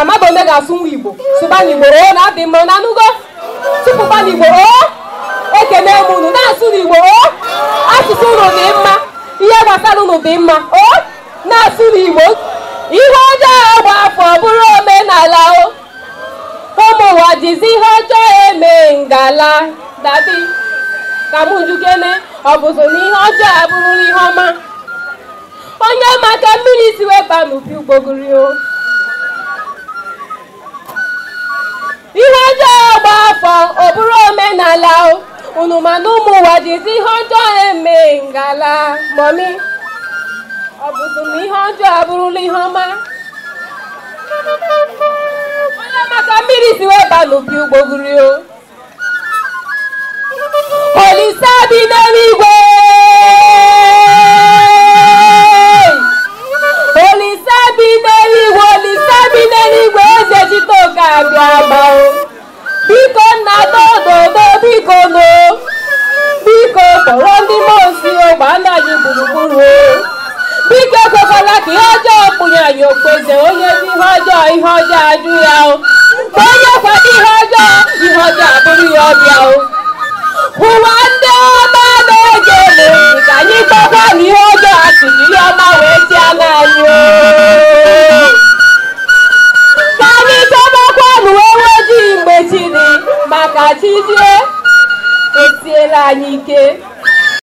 a mmadụ onye ga-asụ nwa igbo sụbana igbo oo na adị mma na anụgo tupu igbo oo ekene m na-asụ na igbo oo asụsụ ụlọ dị mma ihe gbasara ụlọ dị mma na-asụ na igbo ihe ọjọọ gba afọ bụrụ omenala o ụmụ ụwa jizi ihe ọjọọ eme ngala dadi ka m ọ bụzụ na ihe ọjọọ abụrụla ihe ọma onye maka mmiri si weba n'ubi ugbogoro ihe ọjọọ gba afọ ọbụrụ omenala unu mana ụmụ ụwa jizi ihe ọjọọ eme ngala mọmi ọ bụzụ ihe ọjọọ abụrụla ihe ọma onye maka mmiri si wee ba n'opi olise n'elu anyị okpoze onye bụ ihe ọjọọ ihe ọjọọ o mgbe onye kwado ihe ọjọọ ihe ọjọọ o ụwa ndị ọma na-ege ele ka anyị gbakwa na ihe ọjọọ asị jiri ọma wee ji ana anyị o ka anyị chọbakwa na uwe ojii mgbe chi dị maka chi jie etiela